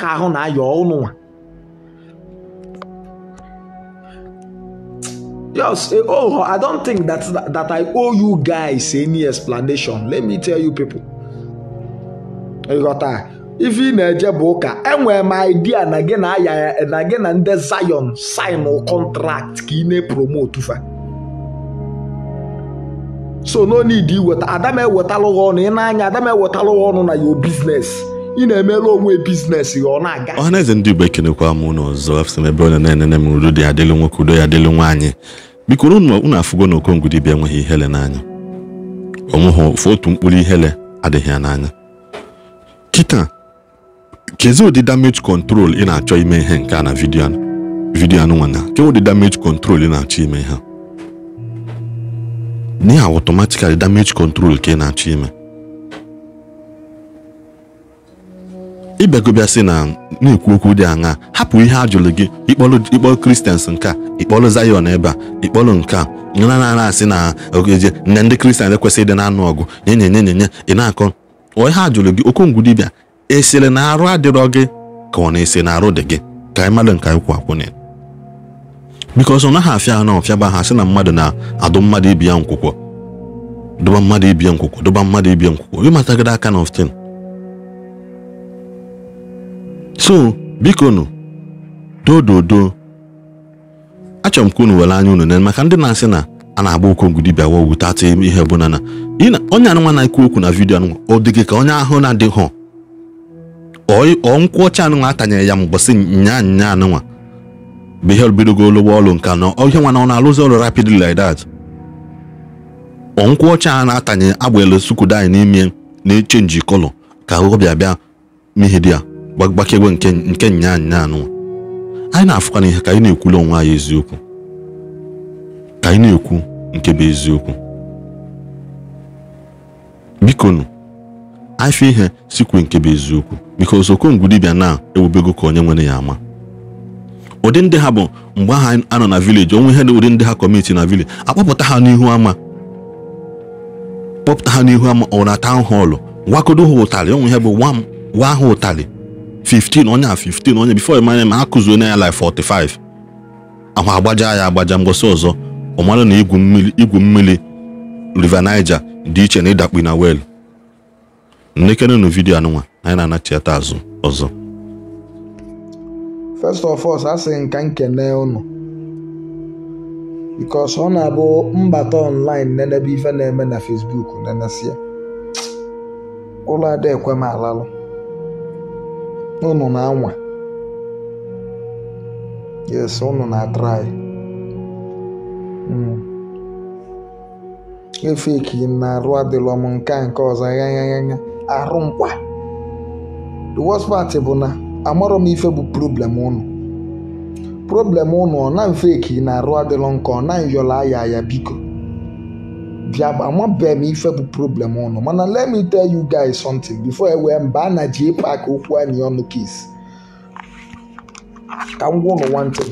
ka ahụ na-ayọ ụnụnwa Yes, oh, I don't think that that I owe you guys any explanation. Let me tell you people. Ịghọta, ife you na-eje bụ ụka enwe m idea na gị na aya na gị na ndị Zion sign contract ka i na-epromote fa. So no need iweta Adam ewetalụghị ọnụ ị na-anya Adam ewetalụghị ọnụ na your business. ị na-emere onwe bizinesị ọ na-aga ọhaneze ndị igbo ekenekwa m ụlọ ọzọ afụsị m ebe ọ na-enene m udo dị adịlụ nwoke udo ya adịlụ nwaanyị biko unu afụgo na okongudibia enweghị ihele n'anya onweghị ofu otu mkpụrụ ihele adịghị ya n'anya kịta kezi ụdị damage control ị na-achọ ime ihe nke a na vidio vidio vidiyo anụnwana ke ụdị damage control ị na-achọ ime ha n'ihi automatically damage control ka ị na-achọ ime sị na na-ekwu okwu dị aṅa hapụ ihe a jụrụ gị ịkpọlụ kristians nke a ịkpọlụ Zion ebe a ịkpọlụ nke a na-ana asị na ogeje na ndị kristian ekwesịghị ịdị na-anụ ọgụ nye nyenyenyenye ị na-akọ ọ ihe a jụrụ gị okongwu dibịa esiri na arụ adịrọ gị ka ọ na-ese na arụ dị gị ka anyị mmadụ nke anyị kwụ akwụnye biko ọsọ naghị afịa ha na ọfịaba ha sị na mmadụ na-adụ mmadụ ibi ya nkwụkwọ dụba mmadụ ibie nkwụkwọ dụba mmadụ ibie nkwụkwọ ịmatagịrị aka na often so bikonu dododo achọrọ m ka unu were anya unu na maka ndị na-asị na a na-agba okongwu dibịa wa ogwu tata ihe bụ na onye anụnwa na-ekwu okwu na vidio anụnwa ọ dịghị ka onye ahụ na ọ nkwụ ọcha anụnwa atanyere ya mgbọsị nya nya anụnwa bụ ihe bidogo olugbo ọlụ nka na ihe nwa na ọ na-alụzi ọrụ rapidly like that nkwụ ọcha a na-atanye agba elu sukudo anyị n'ime na-echenji kọlọ ka ọ bịa bịa di ya gbagbakegbe nke nya nya anyị e na-afụkwana ihe ka anyị e na-ekwula onwe anyị eziokwu ka anyị e na-ekwu nke bụ eziokwu bikonu afọ ihe sikwe nke bụ eziokwu biko osokongwu dibịa na-ewubego ka onye nwere ya ama ụdị ndị ha bụ mgbe aha a nọ na vileji onwe ihe na ụdị ndị ha kọmiti na vileji akpọpụta ha n'ihu ama kpọpụta ha n'ihu ama ọ na họlụ wakodo ha ụtarị onwe ihe bụ nwa m ha ụtalị 15 onye a 15 onye bifo m ma akụzuo onye ya like 45 ahụ agbaja ya agbaja ngosi ọzọ ọ mara na igwu mmiri river Niger dị iche na ịdakpi na wel nlekenenụ vidio anụnwa anyị na-anachiata azụ ọzọ first of all asị nka nkene unu because ọ na-abụ mbata online nenebe ife na-eme na Facebook nenesia ụlọ ekwe m alalụ unu na-anwa yes unu na-atrai hmm. efeki na arụ adịlọ m nke a nke ọzọ anya arụ mkpa the worst part bụ na amarọ m ife bụ problem unu problem unu ọ na mfe eki na arụ adịlọ nke ọ na yọla aya ya biko biama bem ife bụ problem ụnụ mana let me tell you guys something before ewee mba a na ji pak okwu anyị ọnụ kis ka m gwa ụnụ wantin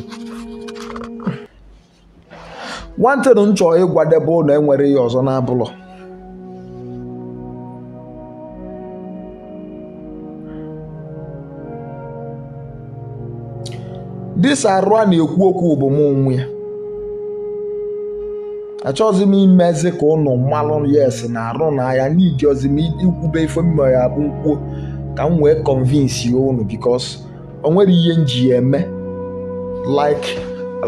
wantin m chọọ ịgwadebe ụlọ enwere ya ọzọ n'abụlọ dis arụ a na-ekwu okwu bụ m onwe ya achọghịzi m imezi ka ụnụ mmalụ yes na-arụ n'ahịa n'ijiọzi m ikwube ife m abụ mkpuo ka m wee convince ya ụnụ bikos onwere ihe nji eme like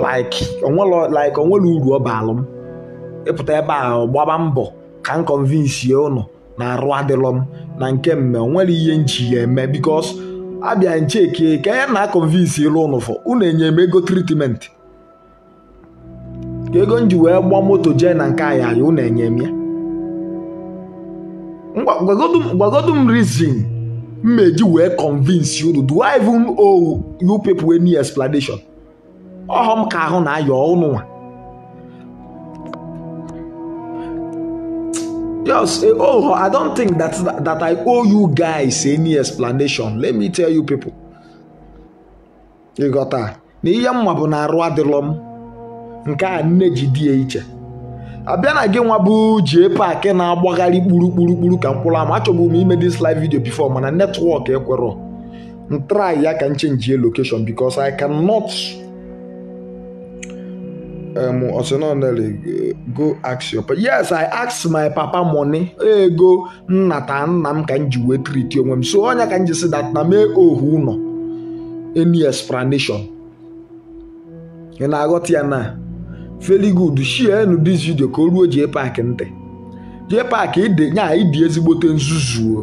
like like uru ọ baalụ m ịpụta ebe a gbaba mbọ ka m convince ya ụnụ na arụ adịlọ m na nke mme onwere ihe nji ya eme bikos abịa ncheke ka ya na convince ịlụ ụnụ fọ unu enye m ego tritiment ego m ji wee gba moto jee na nke anya anyị unu enye m ya gwagodu m reason mmeji meji wee convince unu do I even owe you people any explanation ọhọ m ka ahụ na ayọ unu nwa Yes, eh, oh, I don't think that, that that I owe you guys any explanation. Let me tell you people. You Na ihe mma bụ na arụ adịlọ m. nke a nne ji di ya iche abịa na gị nwa bụ jie paaki na-agbagharị kpurukpurukpuru ka mkpụrụ ama achọgbu m ime dis live video before mana netwọk ekwerọ ntrai ya ka nche chenjie location because I cannot um, ordinarily go ask your papa. Yes, I ask my papa money. Ego nnata nna m ka m ji wee treat onwe m. So onye ka m ji si na mee ohu ụlọ any explanation. Ị na-aghọta ya na very good shienu dis video ka o ruo jee paakị ntị jee paakị e nya ịdị e ezigbote nzuzuo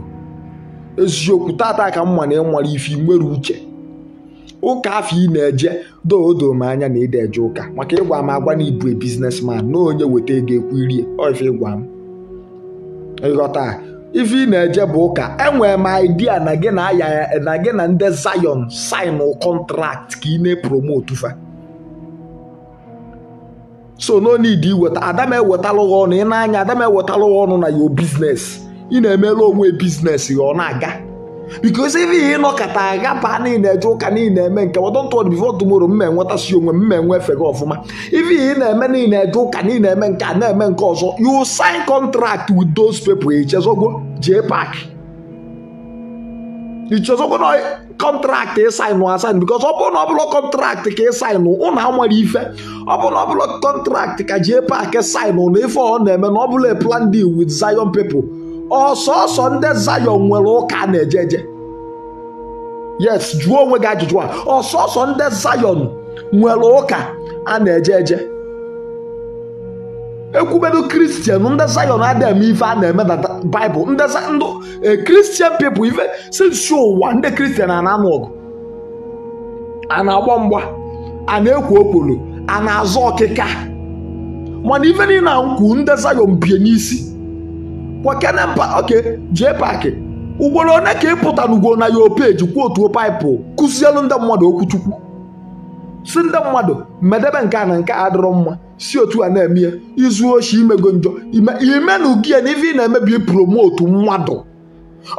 eziokwu tata ka m na ịmara e ife nwere uche ụka afọ ị na-eje doodo m anya na ịda eje ụka maka ịgwa m agwa na ibu biznesman na onye weta ego ekwu irie ife ịgwa m ịghọta ife ị na-eje bụ ụka enwere m idea na gị na ndị Zion sign kọntrakt ka ị na-epromotu fa so no need iweta adam ewetalụ gị ọnụ ị na-anya adam ewetalụ gị ọnụ na yo biznes ị na-emere onwe biznes ya ọ na-aga bikos ife ịnọkọta aga baa niile eje ụka niile eme nke wọdọntọd bifo tumoro mma enwetasi onwe mma enwe efe gị ọfụma ife ihe na-eme niile eje ụka niile eme nke a na-eme nke ọzọ yu sin contract with those people echezọgo jee paaki Because ọbụna kọntraktị ka ịsaịnụ asaịnụ because ọbụna ọbụla kọntraktị ka ịsaịnụ ụnụ anwere ife ọbụla ọbụla kọntraktị ka jee paakị saịnụ na ife ọ na-eme na ọbụla plan deal with Zion people ọsọsọ oh, ndị Zion nwere ụka na-eje eje yes jụọ onwe gị ajụjụ a ọsọsọ ndị Zion nwere ụka a na-eje eje ekwubedo kristian ndị zayọn adịghị eme ife a na-emedata bịbụl ndị kristian eh, pepụl ife si ụwa ndị kristian a na-anụ ọgụ a na-agba mgba a na-ekwo okpolo a na-azọ ọkịka mana ife niile nkwu ndị zayọn bie n'isi oke jee paakị ugboro one ka ịpụta n'ugwo na ya opeji kwuo otuo paịpụ kụzielu ndị mmadụ okwu chukwu si ndị mmadụ medebe nke a na nke a adịrọ mma si otu a na ya izu oshi imego njọ ime na ya na ife ị na-emebi promotu mmadụ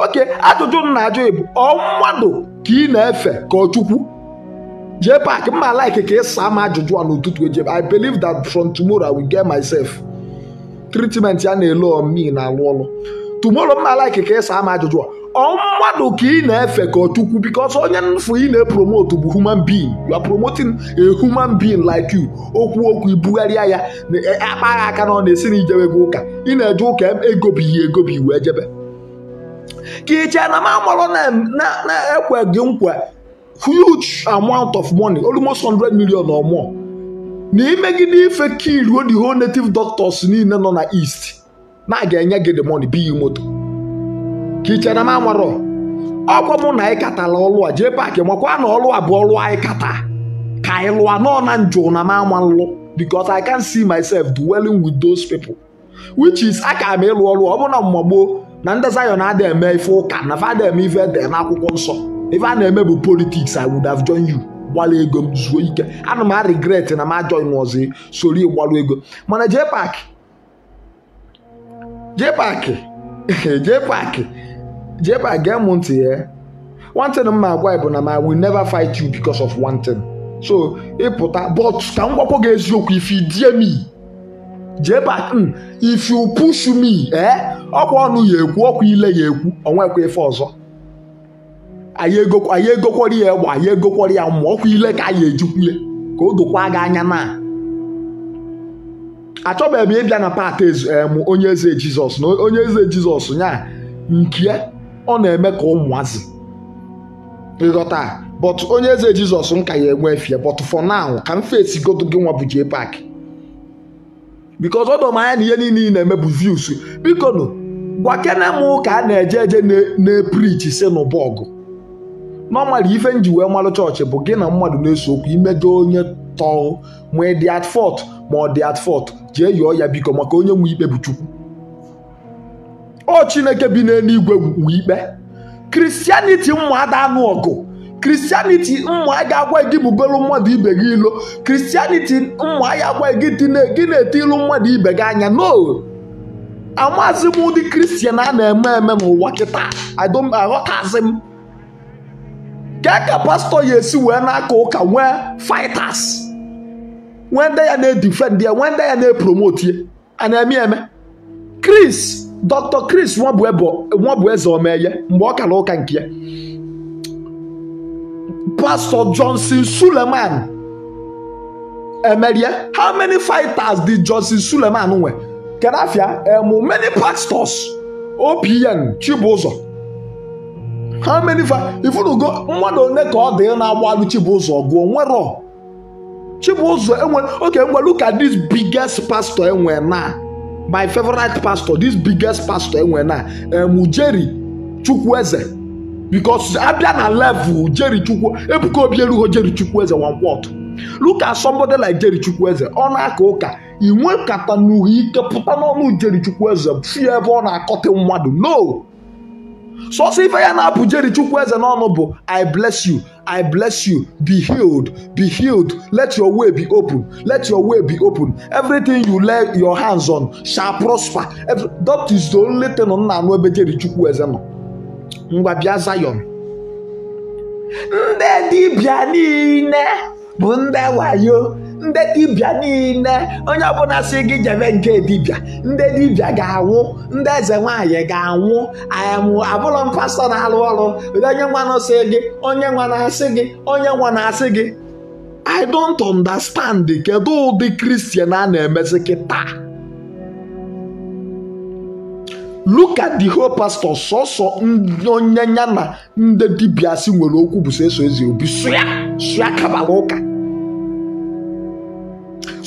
oke ajụjụ nna na-ajụ bụ ọ mmadụ ka ị na-efe ka ọ chukwu jee paaki mma like ka ị saa ajụjụ a n'ụtụtụ eji I believe that from tomorrow I will get myself treatment ya na-ele omi na alụ ọlụ tumoro mma like ka ịsa ama ajụjụ ọ mmadụ ka ị na-efe ka ọchukwu bikos onye nfụ ị na-epromote bụ human being you are promoting a human being like you okwu okwu ibugharịa ya akpaghị aka na ọ na-esi na ijewe gị ụka ị na-eje ụka egobighị egobi wee jebe ka iche na mamoro na-ekwe gị nkwa huge amount of money almost hundred million or more na imegide ife ka iruo the whole native doctors niile nọ na east na a ga-enye gị the money biyi moto ka ichere na m amarọ ọgwọ mụ na anyị katala ọlụ a jee paakị makwa na ọlụ a bụ ọlụ anyị kata ka anyị lụa nọ na njụ na m anwa nlụ because I can see myself dwelling with those people which is aka m ịlụ ọlụ ọ bụrụ na mgbagbo na ndị Zion adị eme ife ụka na fada eme ife ede akwụkwọ nsọ ife a na-eme bụ politiks I would have joined you gbalụ ego m zuo ike ana m a regret na m ajoin ọzọ soro ịgbalụ ego mana jee paakị jee paaki jee paakị jee paakị gee m ntị ya one thing m agwa bụ na ma will never fight you because of one thing so ịpụta e but ka m gwakwa gị eziokwu if you dare me jee paakị hmm, if you push me ee eh, ọkwa ọnụ ya ekwu ọkwa ile ya ekwu onwekwa ife ọzọ anyị egokwara ya egbe anyị egokwara ya mmụọ ọkwa ile ka anyị ejikwule ka o dokwa gị anya naa achọbeghị m ịbịa na pat em onye eze jizọs na onye eze jizọs nya nke ọ na-eme ka ụmụazị ịghọta but onye eze jizọs m ka ya enwe efie but for now ka m fesi godo gị nwa bụ jee pak because m anya na ihe niile ị na-eme bụ views biko nụ gwa kene m ka a na-eje eje na-eprichi si n'ụbọgụ normally ife nji wee chọọchị bụ gị na mmadụ na-eso okwu imejọ onye tọọ ma ị dị at fọt ma ọ dị at fọt. jee yọọ ya biko maka onye nwe ikpe bụ Chukwu ọ Chineke bi n'eluigwe nwe ikpe kristianiti mma ada anụ ọgụ kristianiti mma ga agwa gị bugoro mmadụ ibe gị ilo kristianiti mma ya agwa gị gị na-ete ilu mmadụ ibe gị anya no amazi m ụdị kristian a na-eme eme n'ụwa kịta aghọtazi m ka ka pastọ ya esi wee na-aka ụka nwee fighters wenda ya na-edifend ya wenda ya na-epromote ya a na-eme Chris Dr. Chris nwabụ eze omeye mgbe ọ kara ụka nke ya Pastor Johnson Suleman emerie eh, eh? how many fighters did Johnson Suleman nwe kedafia emu eh, many pastors OPN Chibụzọ how many fa ifunugo mmadụ one ka ọ dị na-agbalụ Chibụzọ gụọ nwero chibuzo enwe oke look ụka this biggest pastor enwe na my favorite pastor this biggest pastor enwe na Ujeri um, Chukwueze because abịa na level Ujeri Chukwu Ebuka Obi erughị Ujeri Chukwueze one word look at somebody like Jeri Chukwueze ọ na-aka ụka inwe nkata na ike pụta n'ọnụ Jeri Chukwueze fie ebe ọ na-akọtị mmadụ no sọsọ ife ya na-apụjeri chukwu eze n'ọnụ bụ i bless you i bless you be healed be healed let your way be open let your way be open everything you lay your hands on shall prosper Every, that is the only thing nna anụ ebe jeri chukwu eze nọ ngwa bịa Zion ndị dibịa niile bụ ndị wayo ndị dibịa niile onye ọbụla si gị jebe nke dibịa ndị dibịa ga-anwụ ndị eze nwaanyị ga-anwụ ayamụ abụrụ m pastọ na-alụ ọrụ onye nwa si gị onye nwa na-asị gị onye nwa na-asị gị I don't understand kedu ụdị kristian a na-emezi kịta taa? Luka di whole pastor sọsọ onye ya na ndị dibịa si nwere okwu bụ so eso ezi obi sụya sụya kabara ụka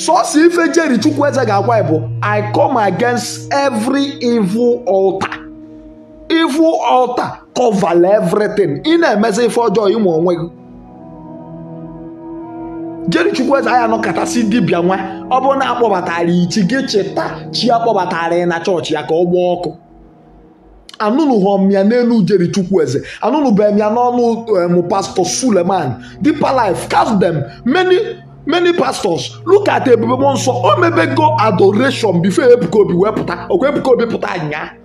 sọsọ ife jeri chukwu eze ga-agwa bụ i come against every evil altar evil altar cover everything ị na-emezi ife ọjọọ ịmụ onwe gị jeri chukwu eze anyị anọkọtasị dibịa nwa ọ bụrụ na akpọbatara ichi gị cheta chi akpọbatara kpọbatara na chọọchị ya ka ọ gbaa ọkụ anụnụ ya n'elu jeri chukwu eze anụnụ bụ ya n'ọnụ pastọ suleman deeper life cast them many many pastors look at ebube nsọ o oh, mebego adoration before ebuka obi wee pụta obi pụta anya.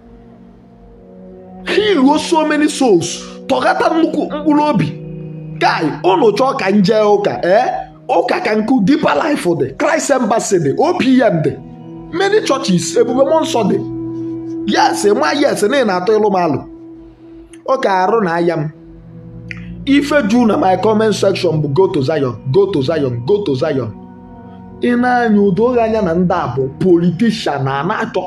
he so many souls tọghata nnukwu mkpụrụ obi guy unu chọọ ka nje ụka ee eh? ụka ka nkụ deeper life dị Christ Embassy dị OPM dị many churches ebube nsọ dị yes ma yes na ị na-atọ ịlụ m ụka arụ na aya m ife ju na my comment section bụ go to Zion go to Zion go to Zion ị na-anya udo anya na ndị a bụ politishan na na-achọ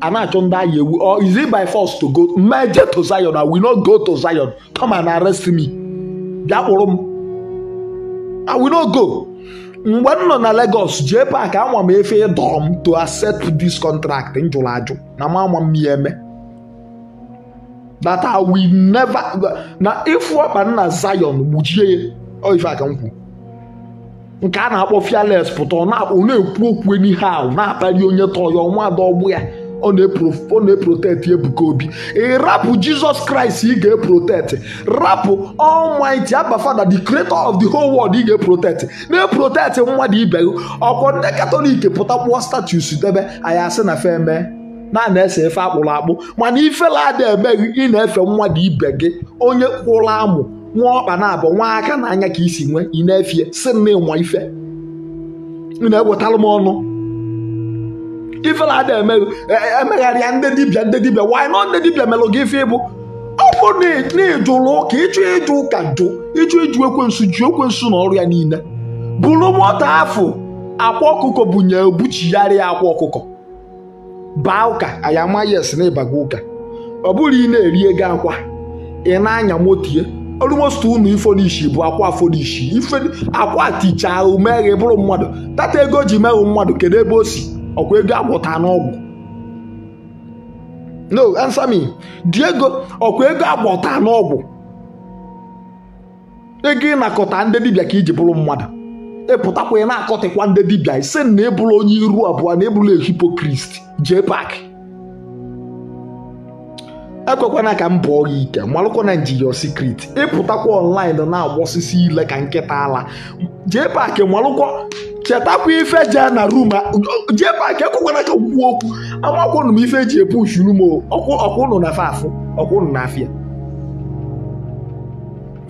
a na-achọ ndị agha ewu or is it by force to go meje to Zion na we no go to Zion come and arrest me bịa kpụrụ m I will not go mgbe m nọ na Lagos jee paak anwam m efe ịdọrọ m to accept this contract m jụrụ ajụ na m anwa m ya eme that I will never na ifu ọkpa nna Zion gbujie ya oh, ife aka nkwu nke a na-akpọ fiales pụta ọ na-akpọ na-ekwu okwu n'ihe ahụ na-akpali onye tọyọ nwadọ ọgbụ ya ọ na-eprotect Ebuka Obi e rapụ Jesus Christ ị ga-eprotect rapụ Almighty Abba Father the creator of the whole world ị ga-eprotect na-eprotect mmadụ ibe gị ndị Katọlik pụta kpụọ status debe anyị asị na fe mee na-ana-ese efe akpụrụ akpụ mana ifela ada emeghị ị na-efe nwa mmadụ ibe gị onye kwụrụ amụ nwa ọkpa na-abụ nwa aka na anya ka isi nwee ị na-efie si na ịnwa ife ị na-ewetara m ọnụ ifela ada e, e, emegharịa ndị dibịa ndị dibịa wanyị nọ ndị dibịa melụ gị ife ịbụ ọ bụ na ịjụrụ ụka ịchụ ịjụ ụka jụ ịjụ ịjụ ekwensu ji ekwensu na ọrụ ya niile bụrụ mọta afọ akwa ọkụkọ bunye buchigharịa akwa ọkụkọ baa ụka anyị ama yes na ịbaga ụka ọ bụrụ ị na-eri ego akwa ị na-anya motie ụnụ unu n'ishi bụ akwa n'ishi ife akwa ahụ umeghe bụrụ mmadụ tata ego ji meghụ mmadụ kedu ebe o si ọkwa ego agwọta n'ọgwụ no ansami dị ego ọkwa ego agwọta n'ọgwụ ego ịnakọta ndị dibịa ka iji bụrụ mmadụ epụtakwa ya na-akọtịkwa ndị dibịa ise na ebula onye iru abụọ na ebula hipokrist jee pak ekwekwana ka m bụọ gị ike malụkwana njiyo sikrit ịpụtakwa ọnlaịn na-agbọsisi ile ka nkịta ala jee pak malụkwa chetakwa ife jee na rum jee pak ekwekwana ka okwu okwu amakwanụ m ife eji epu shuru m ọkwụnụ na afafụ ọkwụnụ na afịa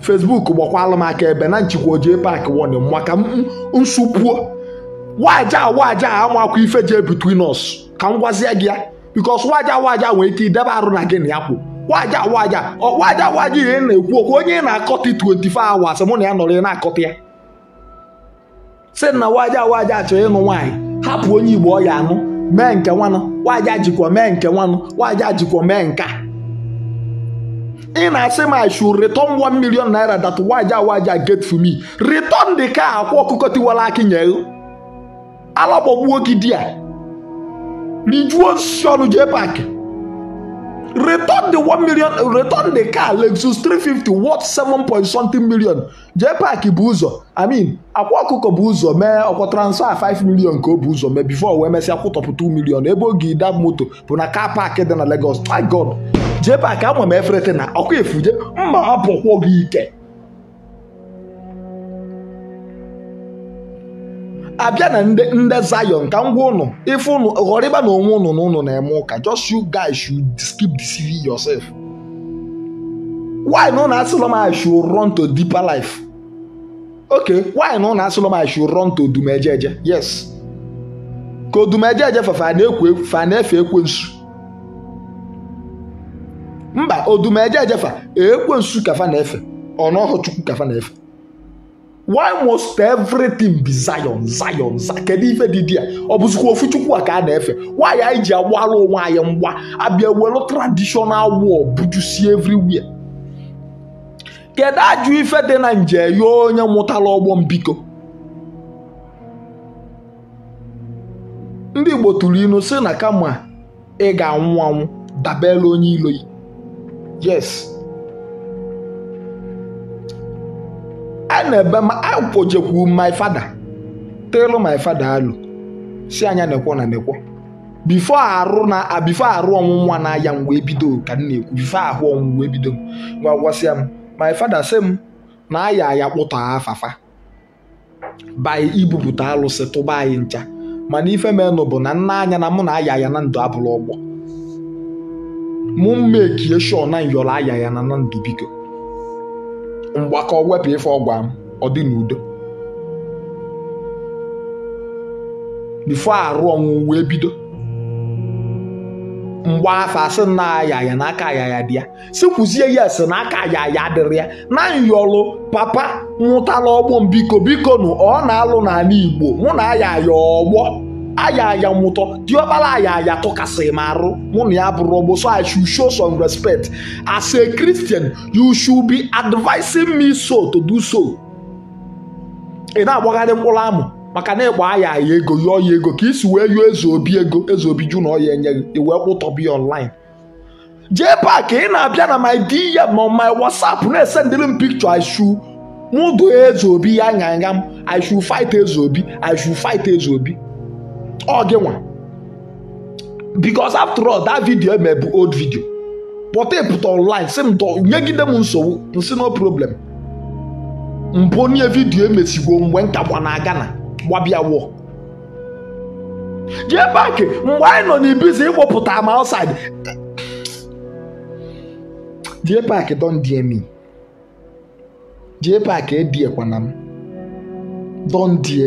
Facebook gbakwala m aka ebe na njikwa ojee paaki warning maka nsụpuo waja waja amakwa ife jee between us ka m gwazie gị ya bikos waja waja nwee ike idebe arụ na gị na ya kwụ waja waja waja waja ihe na-ekwu okwu onye ị na akọta 24 hours mụ na ya nọrọ ị na akọta ya si na waja waja chọrọ ịnụ nwaanyị hapụ onye Igbo ọ ya anụ mee nke nwanụ waja jikwa mee nke nwanụ waja jikwa mee nka In na say my shoe return one million naira that waja waja get for me return the car akwa ọkụkọ tiwara akị nyere alakpọgbuo gị di ya rijuo osisi ọnụ jee paakị return the one million return the car Lexus 350 worth seven point something million jee paakị bụ ụzọ I mean akwa ọkụkọ bụ ụzọ mee ọkwa transfer 5 million ka o bụ ụzọ mee before wee mesịa kwụtọpụ 2 million ebe oge idab moto bụ na car park dị na Lagos my God a ka ama m eferete na ọkụ efuje mma apụkwụ gị ike abịa na ndị Zion ka ngwa ụnụ ife ụnụ ghọrọ ịba na onwe ụnụ n'ụnụ na-eme ụka just you guys should keep deceiving yourself why na ụnụ m I should run to deeper life okay why na ụnụ m I should run to odumejeje yes ka odumejeje fafa na-ekwu fafa na-efe ekwensu mba odumeje ejefa ekwensu kafa na-efe ọnọhụ chukwu kafa na-efe why must everything be zion zion kedu ife didi a ọ bụzikwa ofu chukwu a ka a na-efe nwaanyị anyị ji agbalụ onwe anyị mgba abịa welu traditional war bujusie everywhere kedu ajụ ife dị na nje ya onye mụtara ọgbọ mbiko ndị igbo tụrụ inu si na kama ị ga-anwụ anwụ dabere onye ilo yi yes a na-ebe akpojekwu my father telu my father alụ si anya nekwo na nekwo bifo arụ na bifo arụ ọnwụnwa aya mgbe ebido ka m na-ekwu bifo ahụ ọnwụnwa ebido m ngwa gwasịa m my father sị m na aya aya kpụta afafa by ibupụta alụsị tụba anyị ncha mana ife menụ bụ na nna anya na mụ na aya aya na ndụ abụrụ ọgbọ mụ mmekie sho na nyọrọ aya ya na ndụ biko mgbakọ wepụ ife ọgwa m ọ dị n'udo bifo arụ ọnwụ wee bido mgba afa sị na ayaya na aka dị ya si kwuzie ya esi na aka ayaya dịrị ya na nyọlụ papa nwụtala ọgbọ m biko biko nụ ọ na-alụ n'ala Igbo mụ na ayaya ọgbọ ayaya nwụtọ diọkpara ayaya tụkasịrị m arụ mụ na ya bụrụ ọgbọ so i should show some respect as a christian you should be advising me so to do so ị na-agbagharị mkpụrụ amụ maka na ịkpọ aya aya ego yọọ ya ego ka isi wee yọọ eze obi ego eze obi ju na ya enye gị wee kpụtọbi online jee paaki ị na-abịa na my dm ma my whatsapp na-esendịrị m pikchọ i should mụ do eze obi ya nyanya m i should fight eze obi i fight eze obi ọ gị nwa because after all that video eme bụ old video pụta ịpụta online m nyegide m nsogbu nsi no problem mpụ onye vidiyo emesigwo mgbe nkakwa na Ghana gbabịa wọ jee paaki mgbe anyị nọ n'ibizi ịkpọpụta ma outside jee paaki don die me jee paaki ediekwana m don die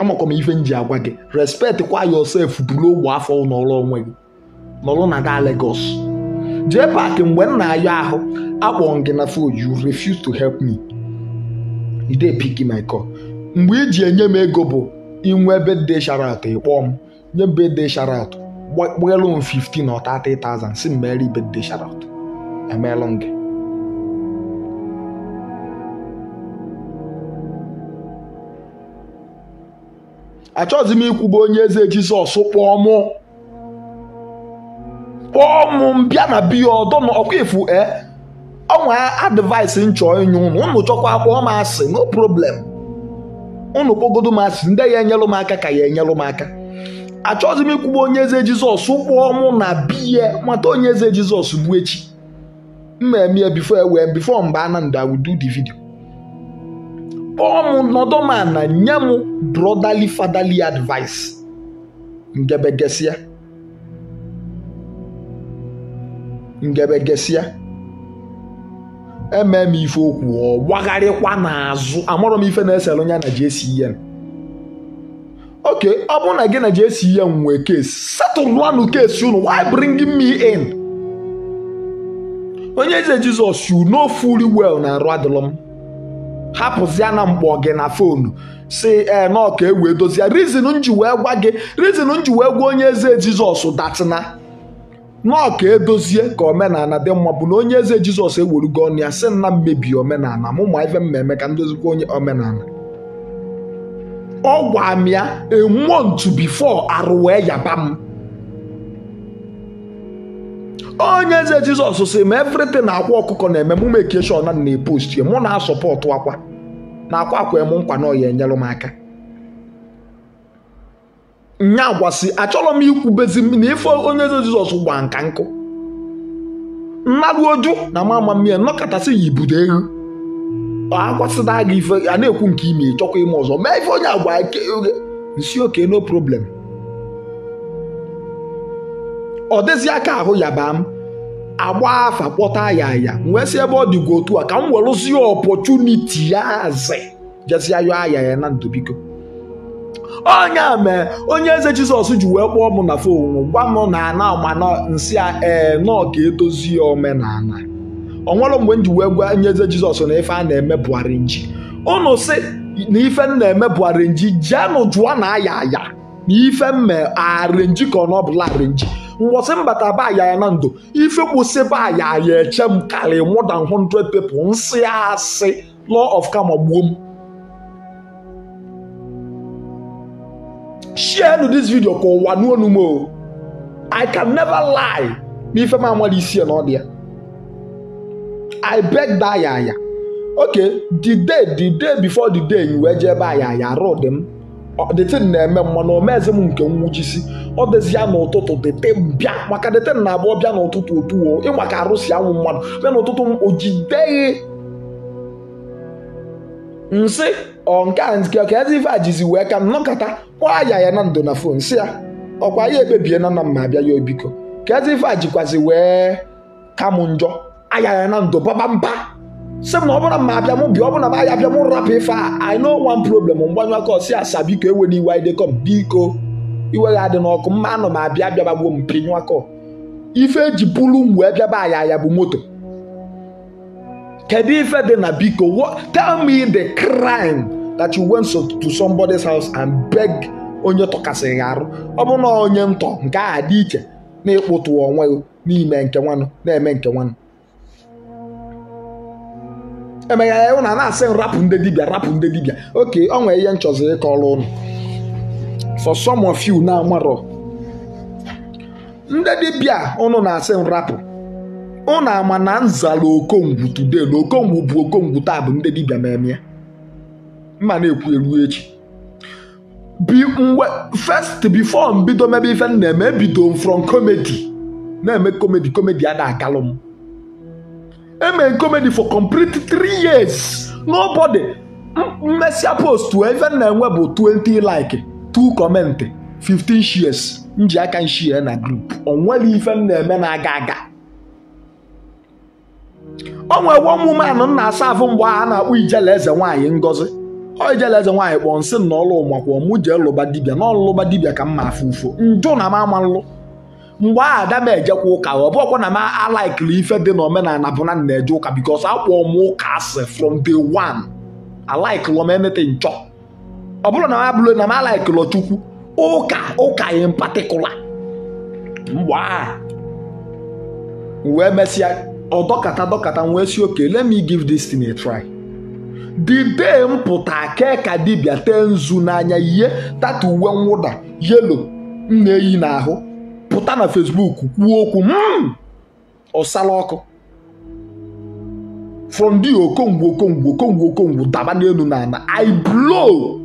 amakwa ife nji agwa gị respect kwa yourself buru ogbe afọ n'ọrụ onwe gị nọrọ na gaa Lagos jee paaki mgbe m na-ayọ ahụ akpọ gị na phone you refuse to help me you dey pick my call mgbe iji enye m ego bụ inwe ebe dị sharat ịkpọọ m nye m bedde sharat gbalụ m 15 or 30,000 si m meere ibedde sharat emeelụ gị achọghịzi m ikwuba onye eze jizọs kpọọ mụ kpọọ mụ mbịa na biya ọdọ na ọkwa e eh? ọnwa advaịsị nchọ inye ụnụ ụnụ chọkwa kpọọ m asị no problem ụnụ kpọgodo m asị ndị ya enyelụ m aka ka ya enyelụ m aka achọghịzi m ikwuba onye eze jizọs kpọọ mụ na biya nwata onye eze jizọs bụ echi mma eme bifo ewe bifo mgbe ananda wudu di vidio Ọmụ m nọdụ m na nye m brọdali fadali advice ngebegesia ngebegesia eme m ife okwu ọ gbagharịkwa n'azụ amụrụ m ife na-esere onye na JCN oke ọ bụrụ na gị na JCN nwee kesi setụlụanụ kesi unu why bring me in onye eze Jizọs you no fully well na arụ adịlọ m hapụzia na mkpọ gị na fonu si ee eh, nọka e wee dozie rizin nji wee gwa gị rizin nji wee gwa onye eze jizọs datina nọka edozie ka omenala dị mma bụ na onye eze jizọs ewerugo ọnụ ya si na mmebi omenala mụ ma ife mmemme ka m onye omenala ọ gwa m ya emuo ntu bifo wee yaba m onye eze jizọs si ma everything na-akwa ọkụkọ na-eme m mekeshon na na mụ na-asọpọtụ akwa na akwa akwa m nkwa na ọya enyelụ m aka nya gwasị achọrọ m ikwubezi na ife onye eze jizọs gba nka nkụ mmadụ oju na mama mmiri nnọkọtasị yi budo ehu agwasịda gị ife a na-ekwu nke ime chọkwa ime ọzọ mee ife onye agwa nsi oke no problem ọ dịzi aka ahụ yaba m agba afa kpọta ya wee si ebe ọ dịgwa otu a ka m werụzie ọpọchuniti ya azị jezie yọ aya ya na ndụ biko onye a mee onye eze jizọs ji wee kpọọ m na fon gwa m na ana mana nsị a ee nọ ka edozie omenala onwere mgbe m ji wee gwa onye eze jizọs na ife a na-eme bụgharị nji unu si na ife m na-eme bụgharị nji jeenụ jụọ na aya aya na ife mme nji ka ọ na ọ bụla Mwase mbata ba ya ya nando. Ife mwose ba ya ya eche mkale more than hundred people. Nsi ase ah, law of karma boom. Share to this video ko wanu onumo. I can never lie. Mi ife ma mwali isi eno dia. I beg that ya ya. Okay, the day, the day before the day you were jeba ya ya road them. detin na-eme mana omezi m nke nwụchisi ọ dịzịa ya n'ụtụtụ dete bịa maka detin na abụọ bịa n'ụtụtụ otuo ịma ka arụsị anwụ mmadụ bịa n'ụtụtụ m o nsị ọ nke ọka ezi ife ajizi wee ka nnọkọta kwa ya na ndo na fon si ya ọkwa ya ekpebie na nna mma abịa ya obiko ka ezi ife ajikwazi wee ka m njọ aya ya na ndo baba mba sị m na ọ bụrụ m abịa m bịa ọ bụrụ na m ahịa m rapụ ife a i know one problem mgbanyụ aka ọsị asa biko ewela iwe anyị dekọ m biko iwe ga adị n'ọkụ mma anọ m abịa abịaba gbuo m pinyụ aka ife eji bulu m wee bịaba aya ya bụ moto kedu ife dị na biko tell me the crime that you went to somebody's house and beg onye ya arụ ọ bụrụ na onye ntọ nke a dị iche na ịkpụtụ onwe n'ime nke nwanụ na-eme nke nwanụ emeghe ụnụ na-asị rapụ ndị dibịa rapụ ndị dibịa oke ọ nwere ihe nchọzi ọrụ ụnụ for some of na amarọ ndị dibịa ụnụ na-asị rapụ ụnụ ama na nzala okongwu today na okongwu bụ okongwu taa bụ ndị dibịa na-eme mma na-ekwu elu echi bi mgbe first before mbido mebe ife m na-eme ebido m from comedy na-eme comedy comedy a na-akalụ m eme comedy for complete 3 years nobody mmesịa post even na-enwe bụ 20 like 2 comment 15 shares nji aka nshie na group nweghị ife m na-eme na-aga aga o nwere one woman na asa afụ mgbe a na akpụ ijele eze nwanyị ngozi ọ ijele eze nwaanyị kpọọ nsị na ọlụ ọmụ jee lụba dibia na ọlụlụba dibia ka mma afụ ụfụ njụ na m nlụ mgbe a ada m ejekwa ụka ọ bụghọkwa na m alaikiri ife dị na omenala na na-eje ụka bikos akwụọ m ụka asị from day one alaikilọ m emete nchọ ọ bụrụ na m abụlụ na m alaikilọ chukwu ụka ụka in particular mgbe aha wee mesịa dọkata wee si oke let me give this thing a try the day m kee ka dibịa tee nzu n'anya ihe tatu uwe mwụda yelo m na-eyi n'ahụ pụta na Facebook kwuo okwu m hmm, ọsala ọkụ from the okongwu okongwu okongwu okongwu daba n'elu na ana i blow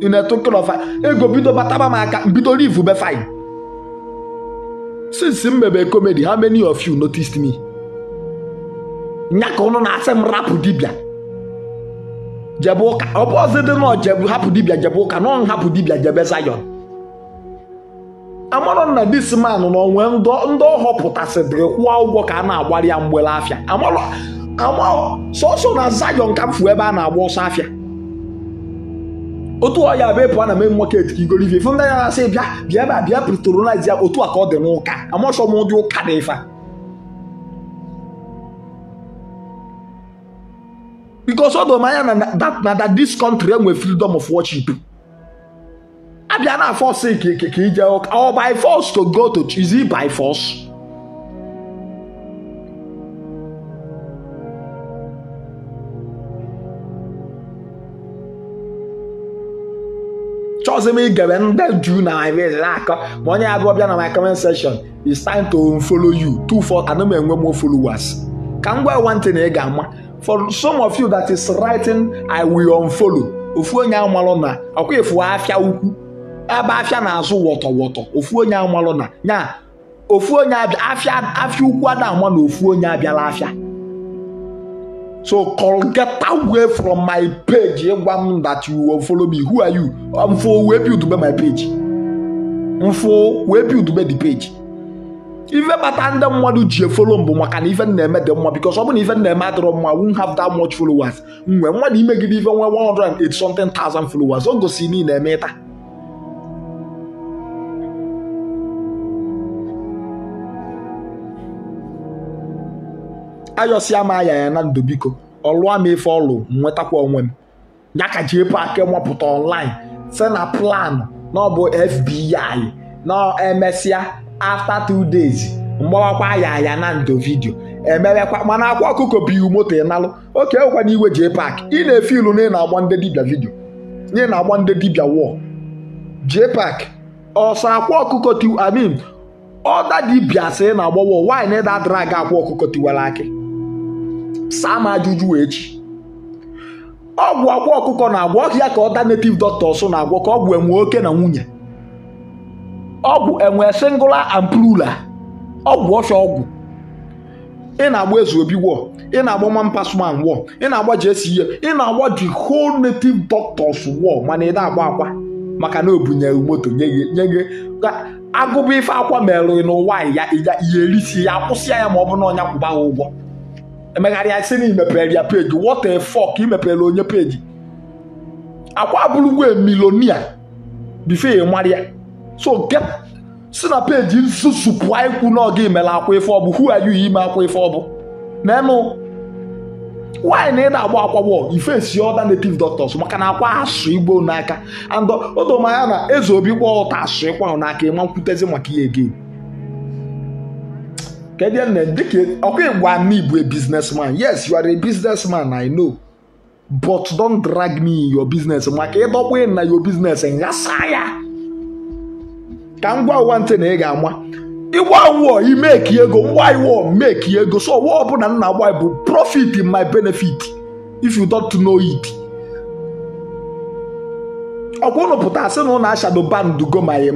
in a token of ego bido bataba m aka mbido live be fine since m mebe comedy how many of you noticed me nya na-asị m rapụ dibịa jebe ụka ọ bụ ọzọ dị nọ jebe hapụ dibịa jebe ụka nọ hapụ dibịa jebe zayon amarọ na dis man na onwe ndị ọ họpụtasịrị kwụọ ụgwọ ka a na-agbara ya mgbele afịa sọsọ na zayọn ka m fu ebe a na-agba ọsọ afịa otu ọya ya bụ ịpụ na main market ka igoro ife ndị ya na-asị bịa bịa ebe a bịa patronize ya otu a ka ọ dị n'ụka amasọ m ụdị ụka na ife because ọ dọrọ na na that this country enwe freedom of worship abia náà fọ sí kì í jẹ ọkà or by force to go to is it by force. chọọsị m igere ndị juu na maives na-akọ ma onye abụọ bịa na my comment section it's time to follow you two four ana m enwe more followers ka m gwa one thing ị ga-ama for some of you that is writing i will unfollow ofu onye amalụ na ọkwa efu afịa ukwu ebe afia na-azụ wọtọ wọtọ ofu onye amalụ na ya ofu onye afịa afịa ukwu ada ama na ofu onye abịala afịa so get away from my page ịgwa m that you won't follow me who are you mfo wee build my page Mfu wee build the page ife bata ndị mmadụ ji efolo mbụ maka na ife na-eme dị mma because ọ bụ na ife na-eme adịrọ mma won't have that much followers mgbe mmadụ imegide ife nwee 180 something thousand followers o gosi na ị na-eme ịta ayọsịa m aya ya na ndụ biko ọlụa m ife ọlụ nwetakwa onwe m ya ka ji epụ aka mapụta online sị na plan na ọ bụ FBI na emesịa afta two days mgbawakwa ya aya na ndụ vidio emewekwa mana akwa ọkụkọ iwu moto ịnalụ oke ekwa na iwe jee pak ị na-efe ilu na ị na-agba ndị dibịa vidio na ị na-agba ndị dibịa wọl jee pak ọsọ akwa ọkụkọ tiw amin ọda dibịa sị na agbawo nwaanyị na ịda drag akwa ọkụkọ tiwere aki saa m ajụjụ echi ọgwụ akwa ọkụkọ na-agwọ ọhịa ka ọ da nativ doctor so na-agwọ ka ọgwụ enwe oke na nwunye ọgwụ enwe singula and ọgwụ ọfịa ọgwụ ị na-agba eze obi wọ ị na-agba mampasman wọ ị na-agba jesi ihe ị na-agba the ho native dọktọs wọ mana ị na-agba akwa maka na obunyeghị moto nye gị ka agụba ife akwa merụghị n'ụwa ya ya erisi ya akwụsị ya ma ọ bụ na ọnya kwụba ha ụgwọ emegharị isi na imepere ya peji what a fuck imepere onye peji akwa abụrụgwe milonia bife ya e mara ya so get si na peji nsusupụ ikwu n'oge imela akwa ife ọbụ who are you ime akwa ife ọbụ nenu nwaanyị na ị na-agba akwa ife si ọda native doctors maka na akwa asụ igbo n'aka and odomanya na eze obi kwa ụta asụ ịkwa n'aka ịma e nkwutezi maka ihe gị ọkwa ịgwa e, m ibu a e business man yes you are a business man I know but don't drag me in your business maka ịdọkwa na your business nghasa ya ka m gwa ụwa ntị na ị ga-ama ịgwa wọ imeki ego ngwa iwọ meki ego so ọwa ọbụla m na-agba bụ profit in my benefit if you don't know it ọkwa ụnụ pụta asị na ụnụ ashado bandu go my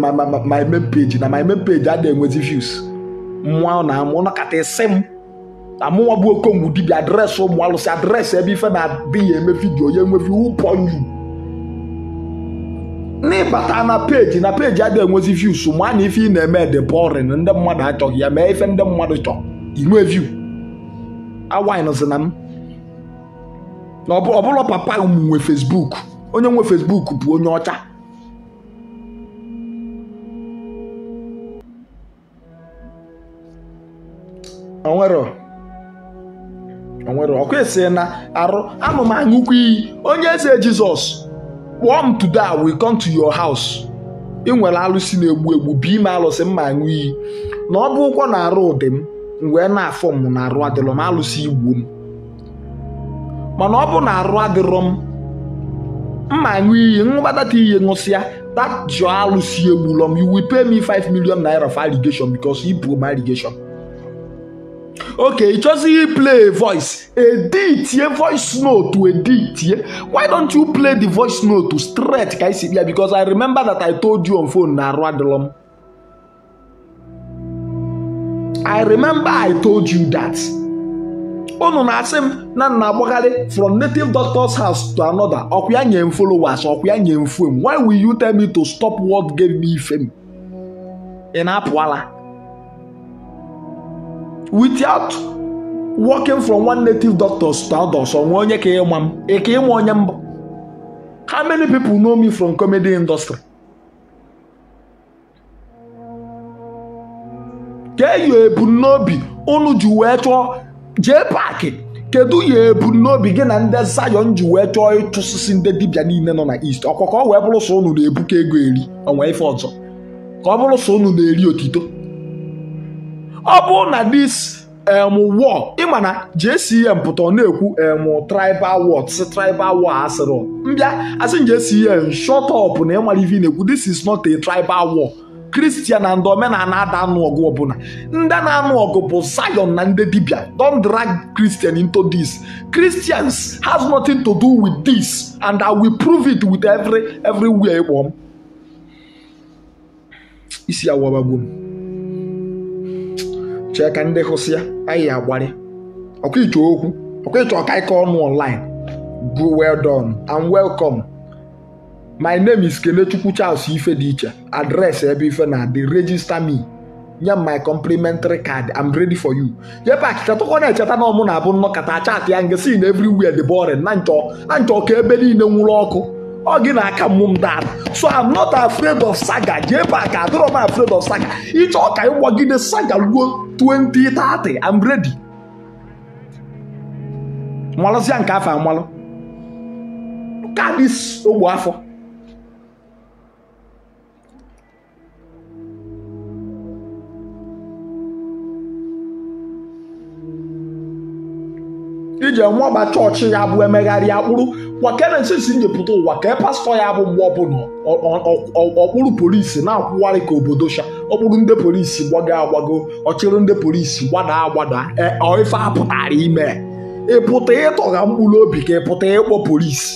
main page na my main page adịghị enwezi views nwa na-amụ nọkatasi m na mụnwa bụ okongwu dibia adreesị ụmụ alụsị adreesị ebe ife na-adịghị eme vidio ya enwe ụpọ pọnyu n'ịbata na peji na peji adịghị enwezi views ma na ife ị na-eme dị boring ndị mmadụ achọghị ya mee ife ndị mmadụ chọọ inwe view awinzi na m na ọ papa m nwe Facebook onye nwe Facebook bụ onye ọcha onwero onwere ọkụ esi na arụ anụ m aṅụkwa iyi onye eze jizọs kpọọ m today I will come to haus ị nwere alụsị na-egbu egbu bi m alụsị m ma aṅụ iyi na ọ bụ ụkwọ na arụ ụdị m wee na-afọ m na arụ adịrọ m alụsị igbu m mana ọ bụ na arụ adịrọ m mma aṅụ iyi ṅụbadata iyi ṅụsịa that jụọ alụsị egbulọ m you will pay me 5 naira for allegation because he broke my okay it just play a voice edi itie voice note edi itie why don't you play the voice note to straight ka isi bịa because i remember that i told you on phone na arụ adịlọ i remember i told you that unu na-asị m na nna agbagharị from native doctor's house to another ọkwa ya nye m followers ọkwa ya nye fame why will you tell me to stop what gave me fame ị na-apụala without working from one native doctors to others onwe onye ka ịma m ịma onye mba how many people know me from comedy industry ka eyi ebumnobi unu ji wee chọọ jee paakị kedu ya ebumnobi gị na ndị zayon ji wee chọọ sisi ndị dibia niile nọ na East ọkwa ka ọ wee bụrụ so unu na-ebuka ego eri onwe ife ọzọ ka ọ bụrụ so unu na-eri otito ọ bụ na dis em um, ị ma na JCM pụta ọ na-ekwu em um, tribal word si tribal war asịrị mbịa asị JCM shut up na ịmara ife na-ekwu this is not a tribal war kristian na and omenala ada anụ ọgụ ọbụla ndị na-anụ ọgụ bụ zion na ndị dibia don't drag christian into this christians has nothing to do with this and i will prove it with every everywhere kpọm isi awa awabagbo m chee ka ndị hụsị ya anyị ya agbarị ọkwa okwu ọkwa ọka ike ọnụ online go well done and welcome my name is kelechukwu charles ife dị iche adreesị ebe ife na adị register me nye my complimentary card i'm ready for you yepa akịkatọkọ na-echeta na ọmụ na-abụ nnọkọta chat ya nke si na everywhere dị boring na nchọ ka ebe niile nwụrụ ọkụ ọ gị na-aka mụ m dara so i'm not afraid of saga jee ka adịrọ m afraid of saga ịchọ ka ịgbagide saga ruo 2030 I'm ready malụsịa nke afọ amalụ kaadị ogbu afọ ije ọba chọọchị ya bụ emegharị akpụrụ wakenensis njepụta ụwa ka pastọ ya bụ mgbe ọbụla ọkpụrụ polisi na-akwụwarị ka obodo sha ọ bụrụ ndị polisi gbago agbago ọ chịrị ndị polisi gbada agbada e, ife a pụtara ime ịpụta ịtọgha mkpụrụ obi ka pụta ịkpọ polisi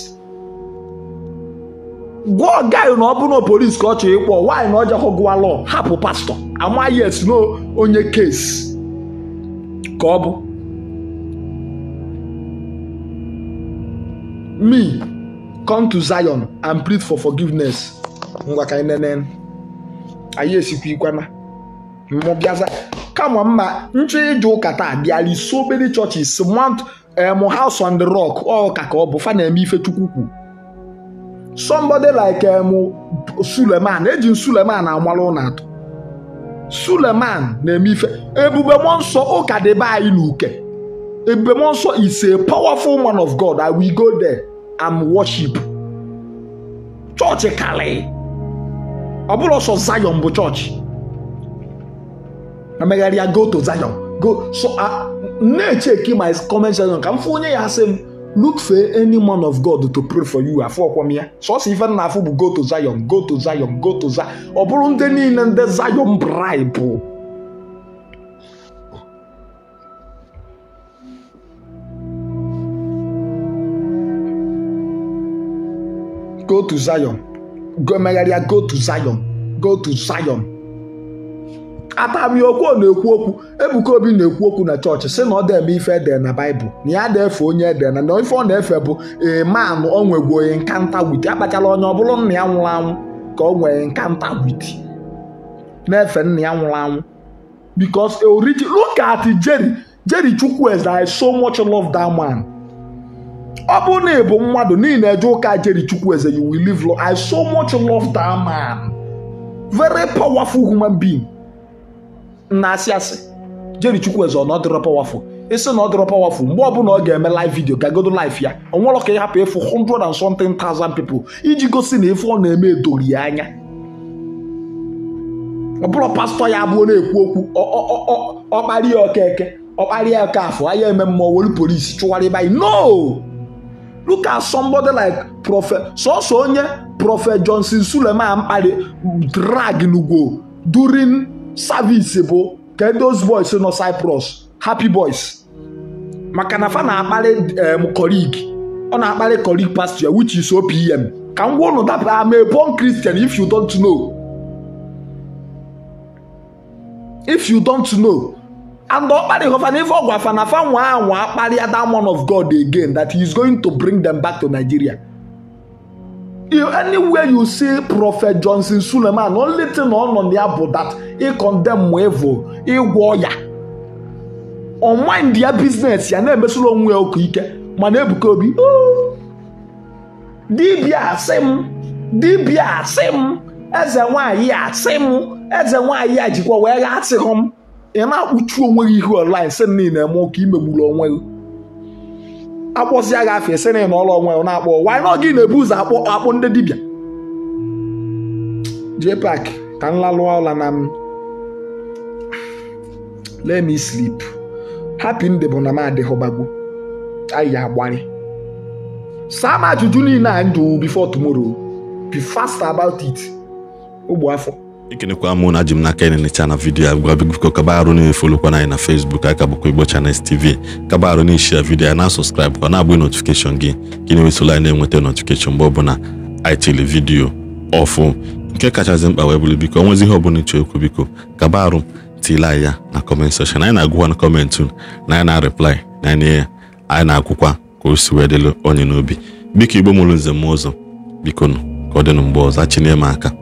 gwa ọgaghị na ọ bụrụ na polisi ka ọ chọrọ ịkpọ nwaanyị na ọjọọ gụwa lọ hapụ pastọ amaghị yes no onye kesi ka ọ bụ me come to zion and plead for forgiveness ngwa ka anyị nene anyị ikwana mụ bịaza kama mma nchọ ije ụka taa bịara isi obere chọọchị emu eh, House on the Rock ọka ka ọ bụ fa na-eme ife Chukwu kwu somebody like eh, Suleman eji m Suleman amara ụlọ atọ Suleman na-eme ife ebube mmụọ ụka dị be anyị n'uke ebube mmụọ nsọ is a powerful man of God I will go there and worship chọọchị e karị ọ bụrụ ọsọ Zion bụ chọọchị emegharịa go to Zion go so na-echeki my comment section ka m fụ onye ya asị m look for any man of God to pray for you afọ ọkwọm ya sọsọ ife na afụ bụ go to Zion go to Zion go to Zion ọ bụrụ ndị niile ndị Zion bribe go to Zion megharịa go to Zion go to Zion atami na-ekwu okwu Ebuka Obi na-ekwu okwu na chọọchị sị na ọ deme ife ede na baịbụl na ya na-efe onye ede na na ife ọ na-efe bụ eman o onye nkanta wit akpachala onye ọ bụrụ nna ya nwụrụ anwụ ka ọ nwee nkanta wit na-efe nna ya nwụrụ anwụ because origi look at Jerry Jerry Chukwueze I so much love that man ọ bụ na ịbụ mmadụ niile eje ụka jeri chukwueze you will live long I so much love that man very powerful human being na asị asị jeri chukwu ọ ọ dịrọ powerful ịsị na ọ dịrọ powerful mgbe ọbụla ọ ga-eme live video gagodo life ya ọ nwere ka ị hapụ ịfụ 100 and something thousand people iji gosi na ife ọ na-eme edori ya anya ọ bụrụ pastọ ya abụọ na-ekwu okwu ọkparịa ọkeke ọkparịa ọka afọ ya eme mmụọ were polisi anyị no Look at somebody like Prophet Soso Onye, Prophet Johnson Sulema Ampade drag n'ugwo during service bụ Get those boys nọ Cyprus happy boys maka na fa na-akparị em um, colleague ọ na-akparị colleague pastor which is OPM ka m gwa ụnụ that I'm a born Christian if you don't know if you don't know and ọ kparịghị ọfa n'ife ọgwa afa a anwa kparịa that of God again that he is going to bring them back to Nigeria anywhere you see Prophet Johnson Suleman only thing ọ nọ ya bụ that ị condemn evil ịgwọ ya ọ mind ya business ya na-emesoro onwe ya ike mana Ebuka Obi dibia asị m dibia asị m eze nwanyị asị m eze nwanyị a jikwa wee gha ị na-akpụchi onwe gị ihu online si niile eme ụka imegburu onwe gị akpọzie gị afọ esi na ọrụ onwe gị na-akpọ wanyị na gị na-ebu ụzọ akpọ akpụ ndị dibịa pak ka m lalụọ ụla na m lee me hapi happy nde bụ na m adịghọbago anyị agbarị saa m ajụjụ niile anyị jụrụ bifọ tumoro bi fast about it ogbe afọ ikenekwa m na ji m n'aka ịnịcha na vidiyo ya gwa biko kaba arụ na-efolokwana anyị na Facebook aka bụkwa Igbo Channels TV kaba arụ na-eshia vidiyo ya na sọskraịbụ ka na-abụghị notifikeshọn gị ka ị na-ewesola anyị na-enweta notifikeshọn mgbe ọbụla anyị tiri vidiyo ọfụ kachasị mkpa wee bụrụ biko onwezi ihe ọbụla ịchọ okwu biko kaba arụ tile ya na kọment seshọn anyị na-agụkwa na kọmentị na anyị na-arịplai na anyị na akwụkwa ka o si wee dịlụ onye n'obi biko igbo mụrụ nze m ụzọ biko nụ ka ọ dịnụ mgbe ọzọ chinyere m aka